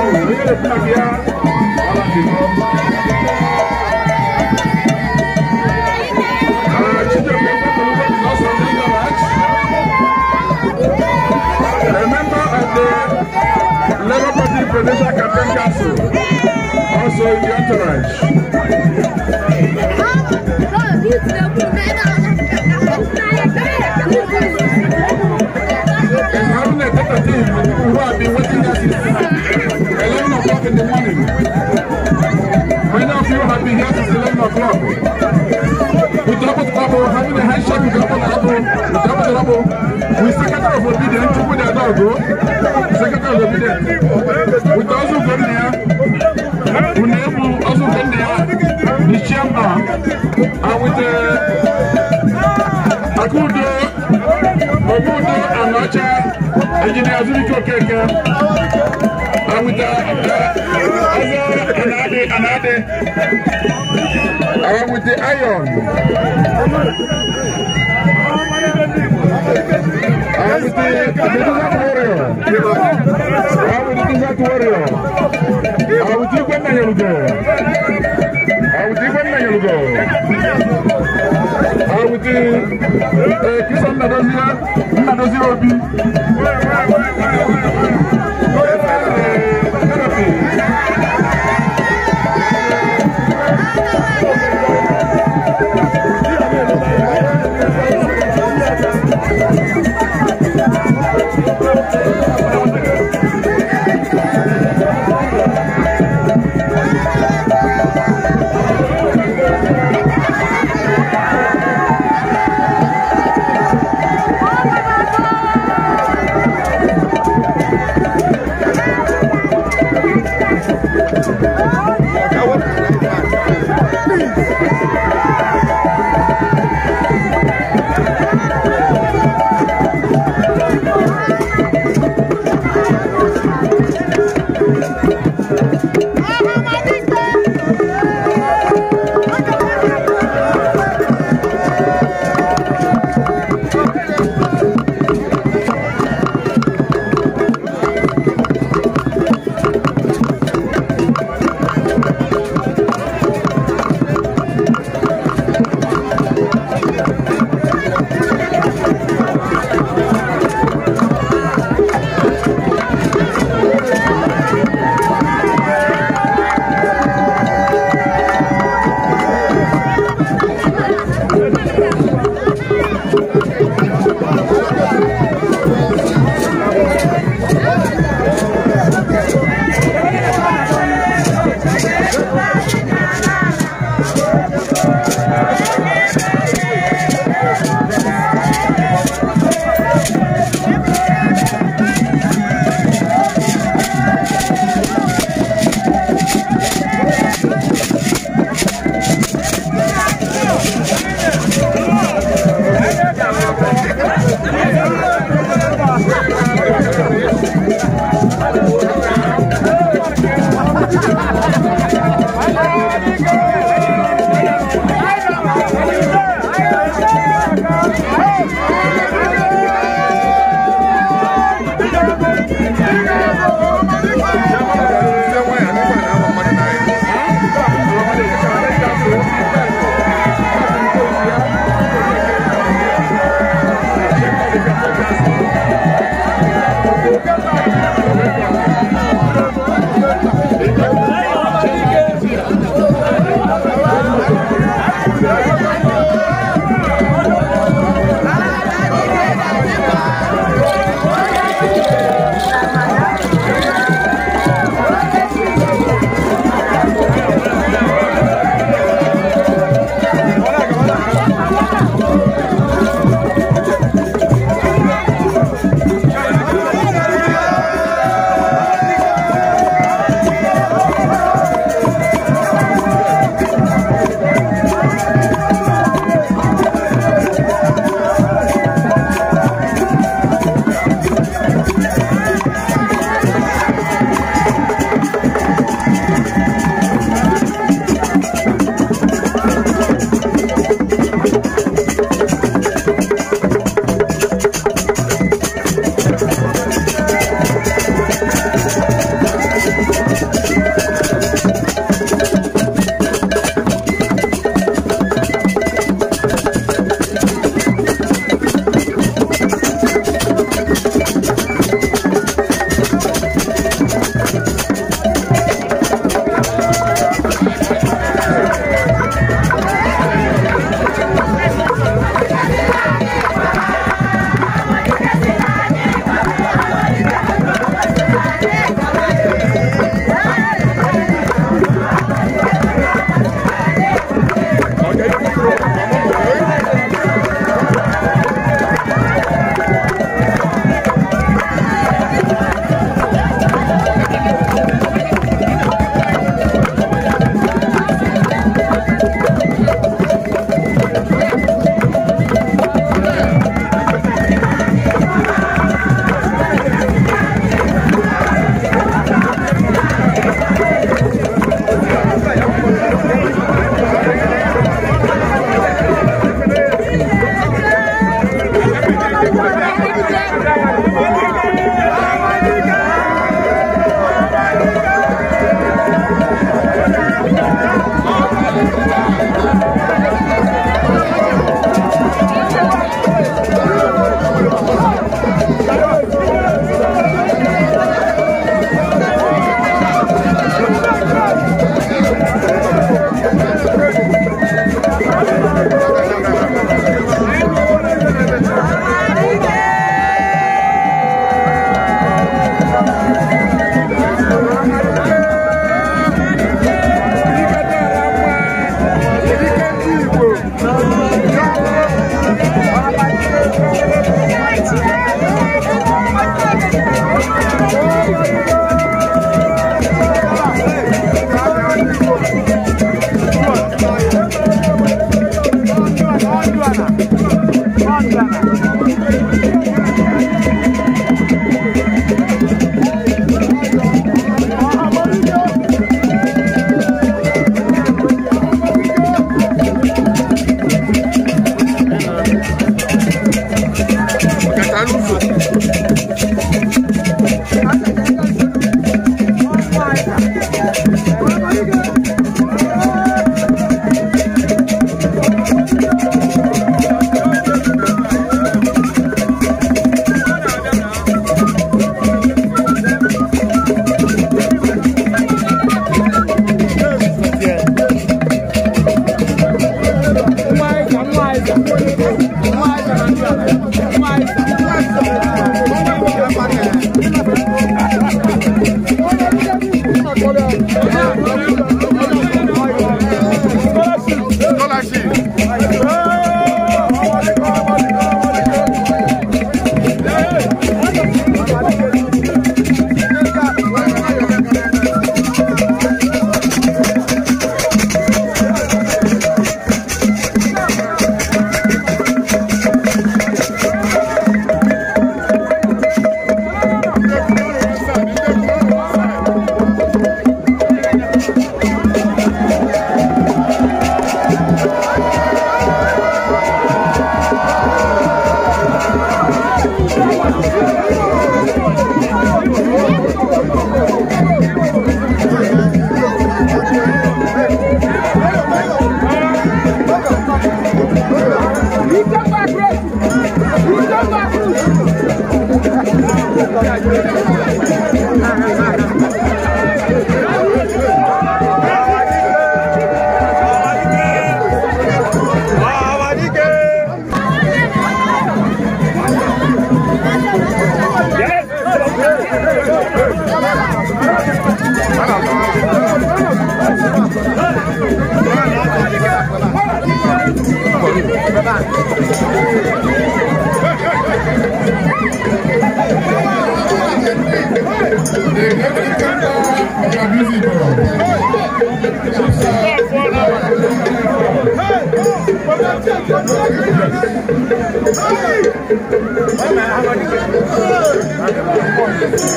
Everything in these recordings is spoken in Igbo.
Federation Campaign the entourage. And having a better team who have been waiting us Ghana club. We double the having a handshake with double the double, double the double. We secretary of obedience, two with the bro. Secretary of obedience. We also go there. We name also go there. The chairman. And with the awụta ọzọ anadị awụta ayọn awụta desert warrior awụta desert warrior awụta igwe nnayalugo awụta igwe nnayalugo awụta ee kisa obi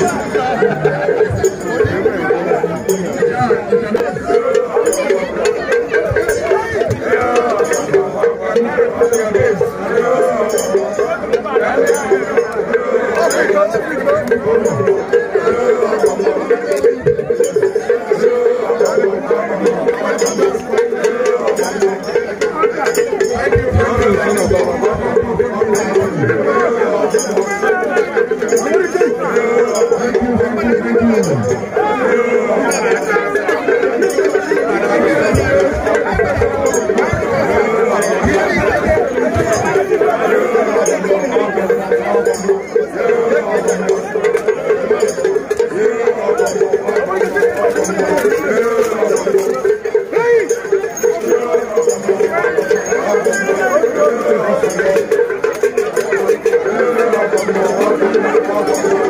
Thank you. Thank you.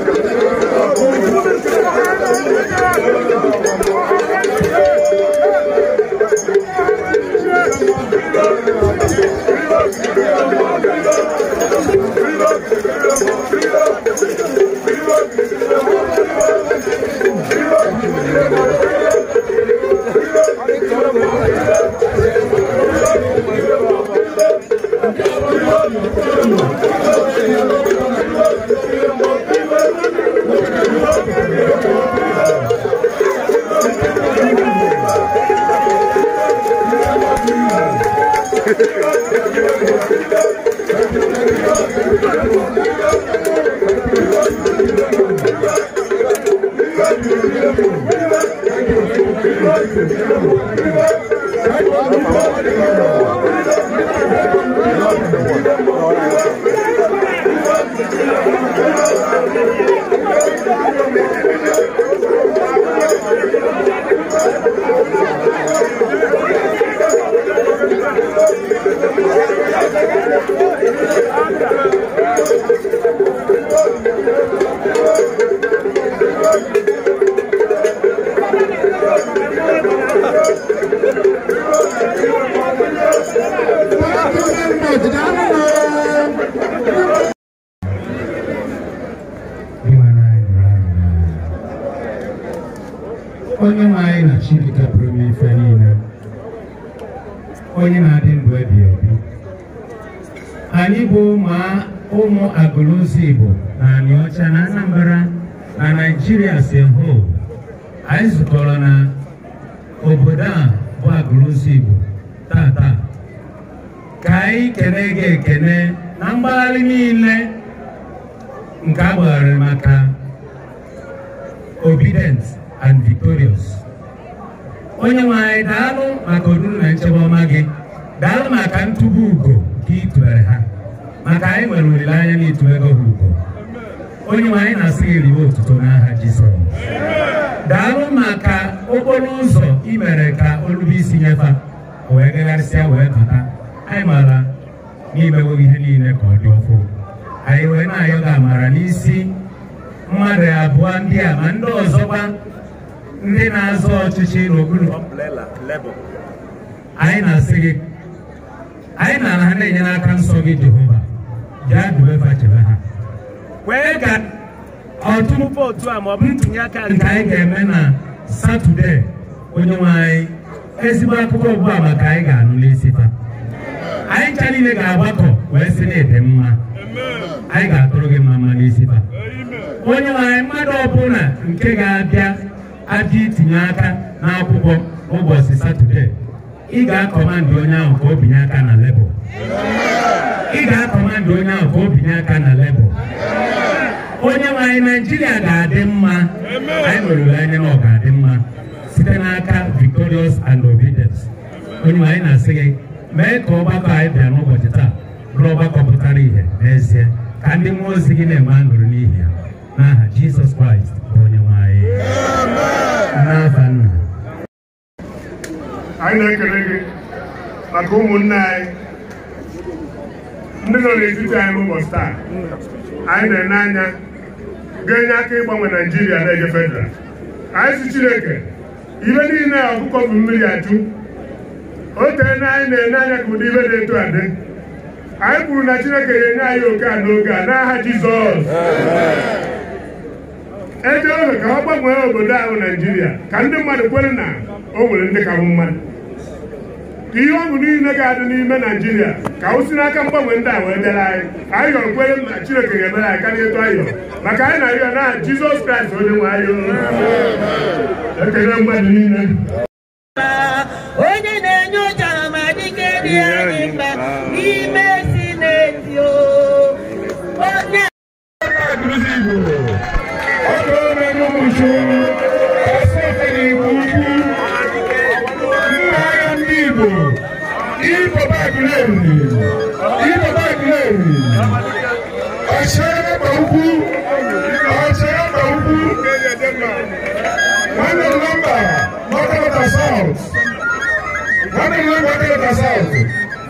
na mgbagharị niile nke a gbagharịrị maka obedient and victorious onye nwe daalụ maka oruru na nchebe ọma gị daalụ maka ntụba ugo nke itubere ha maka anyị nwere olileanya na itubego ha ugo onye nwanyị na-asị gị riwe otuto n'aha Jizọs daalụ maka okporo ụzọ ị mere ka olube isi nyefa wee gagharịsịa wee bata anyị mara n'imewo ihe niile ka ọ dị ọfụ anyị wee na-ayọ gị amara n'isi mmadụ abụọ ndị a ma ndị ọzọkwa ndị na-azọ ọchịchị n'okpuru anyị na-asị gị anyị na ha na-enye n'aka nsọ gị Jehova jaa duwe chebe ha wee ka ọtụtụ vootu a ma ọ bụ ntinye aka nke anyị ga-eme na Satọde onye nwe anyị ezigbo akụkọ ugbu a maka anyị ga-anụ n'isi taa anyị ncha niile ga-agbakọ wee sị na ede mma anyị ga-atụrụ gị mma mma n'isi ba onye nwanyị mmadụ ọbụla nke ga-abịa abịa itinye aka n'akwụkwọ ụbọchị satọde ị ga-akọmandị onye ahụ ka o binye aka na lebụl ị ga-akọmandị onye ahụ ka o aka na lebụl onye nwe naijiria ga-adị mma anyị nwere olileanya na ọ ga-adị mma site n'aka victorious and obedient onye nwanyị na-asị gị mee ka ọgbakọ anyị bịa n'ụbọchị taa bụrụ ọgbakọ pụtara ihe n'ezie ka ndị mmụọ ozi gị na-enwe aṅụrị n'ihi ya n'aha Jizọs Kraịst bụ onye nwe anyị n'afa nna anyị na-ekele gị maka ụmụnne anyị ndị nọ n'etiti anyị n'ụbọchị taa anyị na-ene anya ga-enye aka ịgbanwe Naijiria na-eje federal anyị si Chineke ihe niile ọkụkọ bụ mmiri ajụ otu tee anyị na-ene anya ka ụdị ibe dị eto adị anyị kwuru na chineke ga-enye anyị oke a n'oge a n'aha jizọs eje oge ka ọ gbanwee obodo ahụ naijiria ka ndị mmadụ kwere na o nwere ndị ka bụ mmadụ ka ihe ọṅụ niile ga-adị n'ime naijiria ka o si n'aka mgbanwe ndị a wee bịara anyị anyị yọrọ kwere na chineke ga-emere anyị karịa etu anyị yọrọ maka anyị na-arịọ na jizọs kraịst onye nwe anyị ekele mmadụ niile ana ihe gbadoro na saụtụ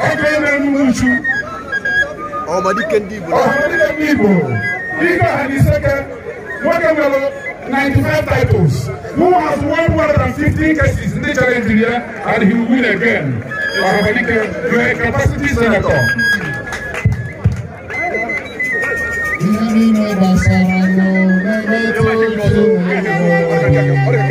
ọ bụ ebe nnukwu uchu ọmadike ndị igbo ọmadike ndị igbo dịka ha 95 titles who has won 115 cases ndị chere and he will win again ọmadike you are a capacity senator Ini basara no, ini Orang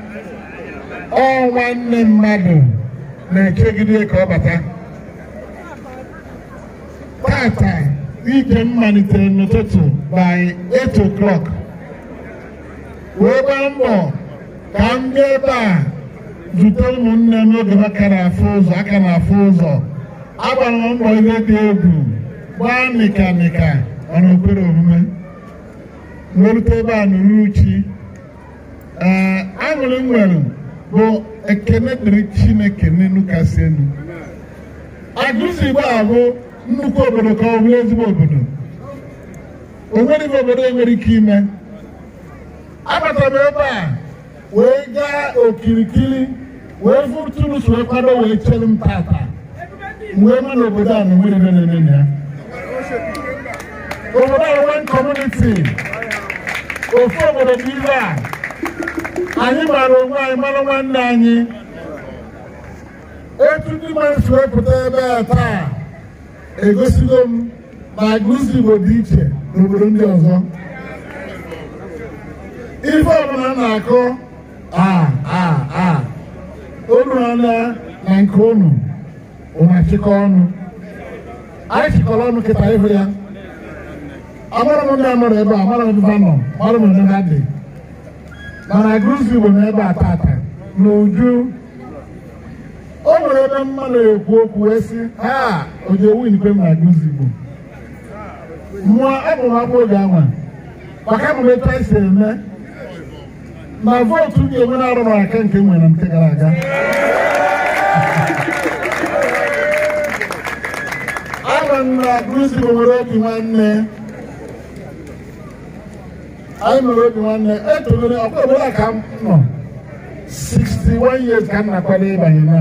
ọ nne mmadụ na-ekegide ka ọ bata tata ike m malitere n'ụtụtụ by 8 o'clock wee gba mbọ ka m ebe a zute ụmụnne m n'oge aka na-afụ ụzọ aka na-afụ ụzọ agbara mbọ ihe dị egwu gbaa nịkanịka ọna okpere omume merute ebe a n'uruchi ee aṅụrị m nwere bụ ekene dịrị chineke n'elu kasị elu agụsigbo abụ nnukwu obodo ka ọ bụrụ ezigbo obodo o nweghị obodo enwere ike ime Agbata m ebe a wee gaa okirikiri wee fụtụrụ so kwado wee chere m tata wee ma na obodo a na nwere na ya obodo a nwee kọmuniti ofu obodo bụ ibe a anyị mara onwe anyị mara nwanne anyị Otu ndị mmadụ si wepụta ebe a taa egosigo m na agụzi Igbo dị iche n'obodo ndị ọzọ ife ọbụla na-akụ unu ọna na nke unu ụmachịkọ ọnụ anyị chịkọrọ ọnụ kịta ịhụ ya amara m ndị amara ebe a amara m ebe a nọ amara m ebe ha dị mana Guzzi bụ n'ebe a tata n'uju. o nwere ebe mmadụ ekwu okwu wee sị ha ojewunikwe m na Guzzi bụ mụọ abụ m oge anwa maka emume taisi eme ma vootu ga-enwe na-arụ n'aka nke m nwere nke gara aga abụ m na Guzzi bụ nwere otu nwanne anyị nụrụ obi nwanne etolere ọkwa obodo a ka m nọ 61 years ka m na-akwado ịbanye na.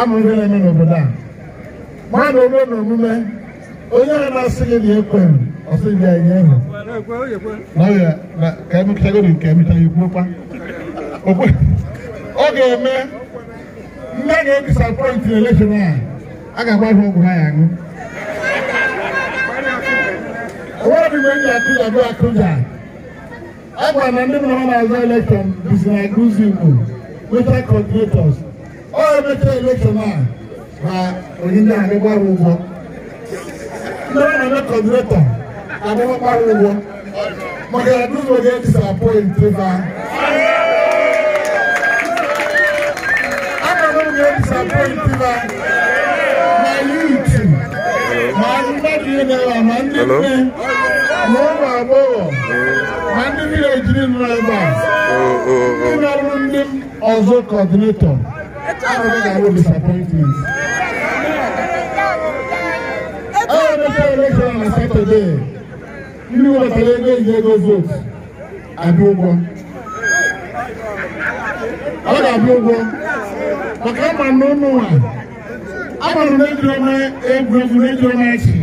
ama ihe na-eme n'obodo a mmadụ ome na omume onye a na-asị gị na ekwe ọsịbịa enye ehu ka emechagoro nke emecha ikwukwa ọ ga-eme nne ga-edisapoint na elekshon a a ga-agba ihe ọgwụ ha ya ṅụ onwe ọdịgbe enyi akụja bụ akụja agwa na ndị mụrụ na-azụ elekshọn bizi na guzu igbo weta kọdinetọs ọ emeta elekshọn a ma onye ndị anyị gbara ụgwọ ndị ọ na-eme kọdinetọ adịghị gbara ụgwọ maka ya ndị ụzọ ga-edisa pọintị ba agwa na ụzọ ga-edisa pọintị ba ma yuutu ma ndị mmadụ na-ewe ma ndị nne na ụmụ agbọghọ na ndị vileji nọ ebe a ndị na ndị ọzọ kọdinetọ ahụghị na-arụ na satọde ndị webatara ego eji ego votu abịa ụgwọ ọ ga-abịa ụgwọ maka ama na ụmụ ejiri na ejiri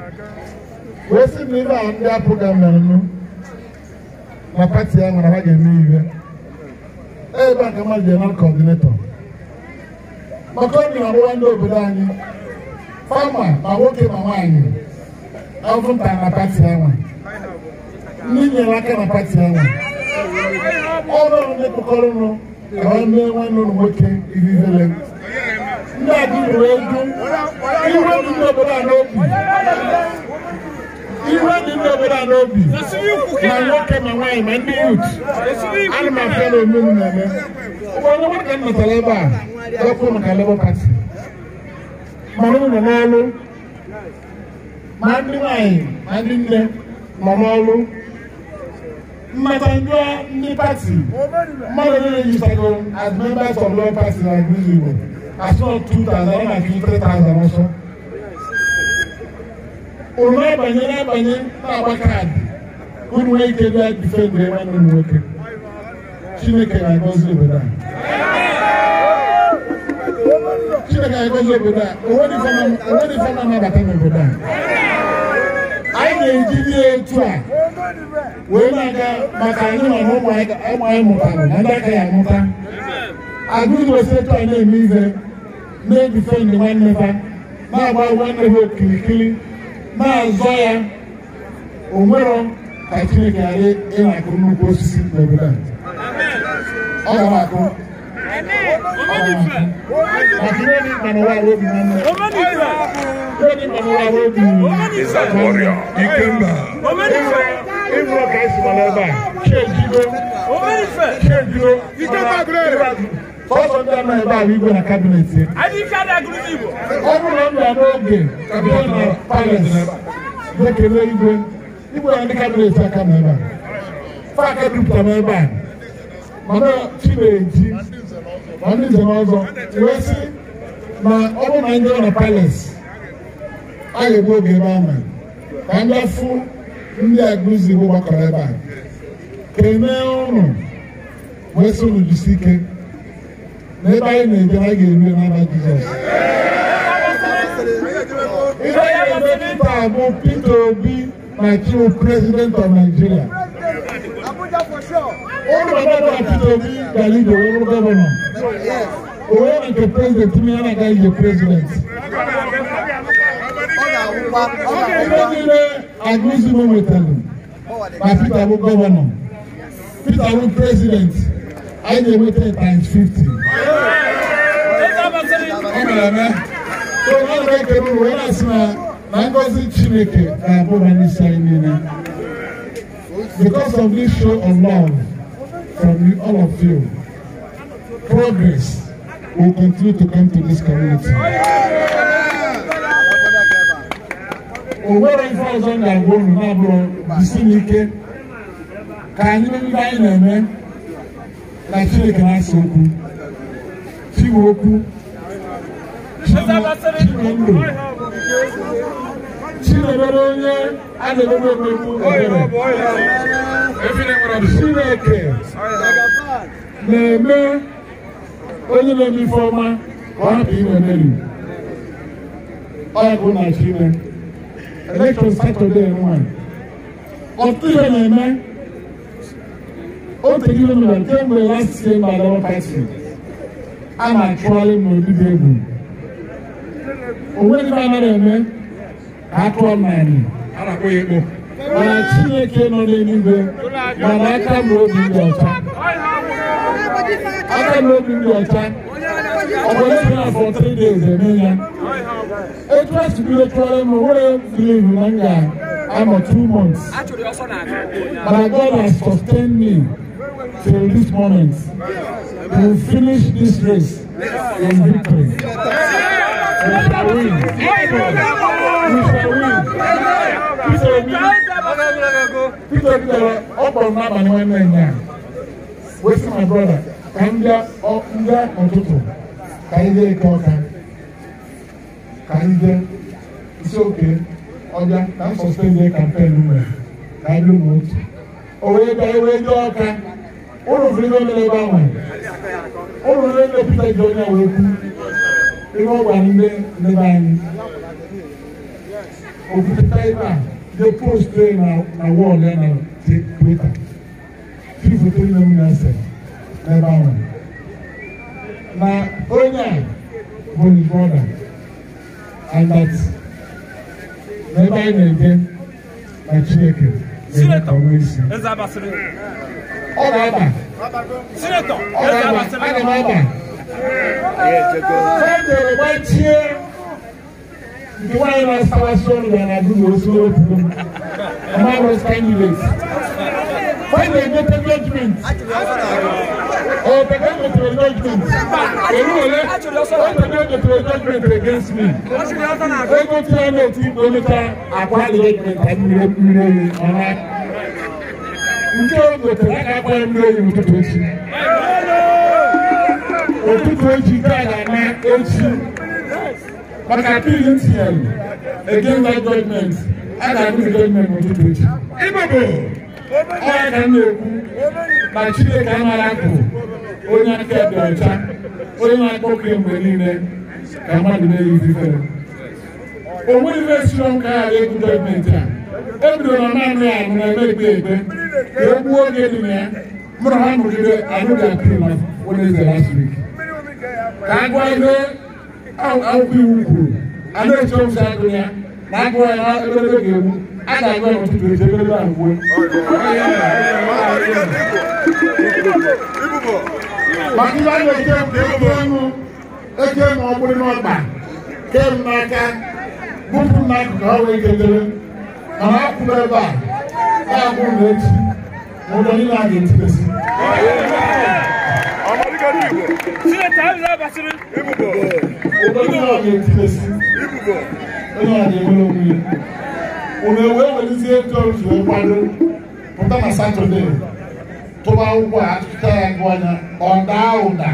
wee sị na ibe a ndị apụga mmerenụ na pati ya nwere ha ga-eme iwe ebe a ka mmadụ ga-eme kọdinetọ maka ọ na-arụwa ndị obodo anyị fama ma nwoke ma nwaanyị ọvụnta na pati ya nwa ndị nyere aka na pati ya nwa ọrụ ndị kpọkọrọ nụ ka ọ mee nwanne ụlọ nwoke ivivele ndị adịghị wee ju iwe ndị obodo a n'obi iwe dị ndị obodo a n'obi ma nwoke ma nwaanyị ma ndị yut ana m afịa na na-eme onye nwere m natara ebe a wepụ maka Labour Party mana ụlọ n'ọrụ ma ndị nwaanyị ma ndị nne nọ n'ọrụ mmata ndị ndị pati mmadụ as members of Labour Party na Igbo as well 2000 na ọsọ oroma abanye n'abanye na-agba kaadị unu nwee ike bịa difendị nwanne m nwoke chineke na-agọzi obodo a chineke na-agọzi obodo a onwedị fama na-abata n'obodo a anyị na-eji ihe etu a wee na-aga maka anyị nọ na ụmụ anyị mụtara na ndị aka ya amụta agụụosi etu a na-eme ihe na-edifendị nwanne ha na-agba nwanne ha okirikiri maazụ ya onwero ka chineke ghara ịnakụ nnukwu osisi n'obodo a ọ gara akụ Is that warrior? Ikemba. Ịrụ ọka esi mara ebe a. Chee jiro. Chee jiro. Ikemba gụrụ ebe a. Fọsọ ndị ama ebe ahụ igwe na kabinet. Ọ bụrụ na m n'oge bịa na palet na-ekele igwe igwe na ndị kabinet aka m ebe a. Faka dupụta m ebe a. ndị nze na ọzọ wee na ọ bụrụ na ndị ọ na a ga oge ebe ahụ ka ndị afụ ndị gbakọrọ ebe a. Kenee ụnụ wee sị unu n'ebe anyị na-eje anyị ga-eru n'aba jizọs ife anyị na-eme kịta bụ peter obi na chief president of nigeria ụlọ gọvanọ peter obi gara ibe wụrụ gọvanọ onye na nke prezident m ya na-aga ije prezident ife niile agụzi m nwetara na peter bụ gọvanọ peter bụ prezident I dey wait ten times fifty. ọ mere eme so ọ bụ ekele ụwa ya na-asị na na ngọzi chineke ga-abụ ha n'isi anyị niile because of this show of love from you all of you progress will continue to come to this community. o nwere ife ọzọ ga-agwa unu na-abụrụ jisi n'ike ka anyị ndị anyị na-eme na Chineke na-asa okwu Chinwe okwu Chinwe Chinemere onye a na-emegbu emegbu ebere Chineke na-eme onye na-eme ife ọma ka ọ hapụ inwe mmeri ọ ya bụ na Chineke elekshọn Satọdee nwa ọtụtụ ihe na-eme otu gị kemgbe a na-achụgharị m n'obibi egwu onweghị anaghị eme ka a naanị mana chineke nọ n'eluigwe mana aka m obi dị ọcha aka m obi dị ọcha ọ na for three days eme ya etu a si bido tụọrọ m nwere believe na m ga two months mana God has sustained me till this moment we finish this race in victory. We shall win. We shall win. Peter Obi Peter Obi dara ọkpọrọ n'abalị nwanne ya wetin my brother ka ndị ndị ụtụtụ ka anyị dee ike ọka ka anyị dee isi oke ọbịa ka m sọsọ eze kampen mere ka anyị dị ụmụ otu o wee bịa wee dị ọka olùfilé lé bá wọn olùfilé lé pété ìjọ ní àwọn eku irú ọgbà nílé ní báyìí òfin tẹ́lá dé post dé na wọ́ọ̀lù ẹ̀ na ti pété fífi tó ní ẹmu náà sẹ̀ ẹ̀ bá wọn na onye a bụ his brother and that n'ebe anyị na-eje na Chineke. Sinetọ, eze abasịrị. Ọ na-aba. Sinetọ, eze abasịrị. Ana m aba. Fọdụ oroma tie nke nwaanyị na-asawa sọọ na na-agụ n'osu okwu. Ọma bụ kandidate when they get engagement or they get into engagement olúwọlé when they get into engagement against me ego tí wọn náà ti gbóníta àkọ́ engagement àti ilé ilé ọ̀la njẹ́ o gbèsè láti akọ́ ilé ìmùtútù echi òtútù echi tí a ga-ama echi maka pntl against that government a ga-ama engagement òtútù echi. onye ka m na-ekwu na Chineke amara nkụ onye aka dị ọcha onye na-akpọ okenye mgbe niile ka mmadụ na-eyizi ifere o nweghị ife siri ọnụ ka ya dị egwu gọọmenti a ebido na naanị ya nọ na-eme ekpe ekpe ka e gbuo oge dị na ya mụrụ ha nọgide anụghị apịrị na Wednesday last week ka a gwa ihe akwụkwọ iwu kwuru a na-eche ụzọ agụ ya na agụwa ya ebe ga-egbu Màtúbà lè ké mu ké mu eke mu ọ̀gbìn n'ọgbà ké mu n'aka bùpù n'akụkụ ọrụ egedere mana akwụrụ ebe a na-akwụ n'echi ma ụlọ niile a ga-etibesi. Sinata ahụ na-abasịrị. Ụlọ niile a ga-etibesi. Onye a ga-enwere onwe ya unu ewee welizie ego otu nkwado pụta na satọde tụba ụkwụ a atụta ya gụ anya ọ daa ụda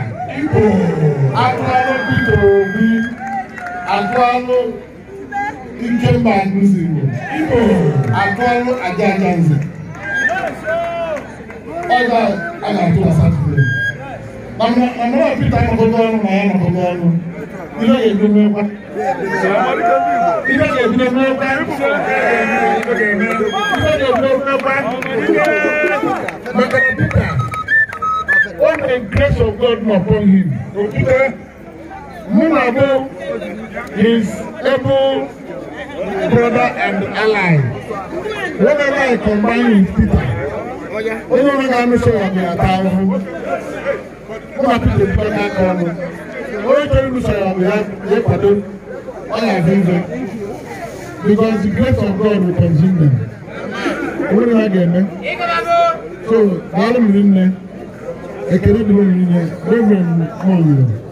atụalụ Peter Obi atụalụ Ikemba Agụzigbo atụalụ aja aja nze ọ ga-atụ na satọde na mmadụ Peter nọgọdọ ọnụ na ya nọgọdọ ọnụ Bila ye when the grace of God was upon him, Peter, Munabo, is able brother and ally, whenever I combine with Peter, only when I'm sure I'm going to town, I'm going to put the only thing we say we have we pardon all our sins because the grace of God will consume them. Wọ́n yóò gẹ̀ ẹ́ so báwo ni mi nìyẹn ekele dùn mí nìyẹn bẹ́ẹ̀ bẹ́ẹ̀ mọ̀ yìí.